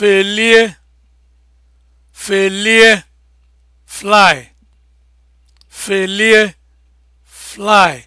felie felie fly felie fly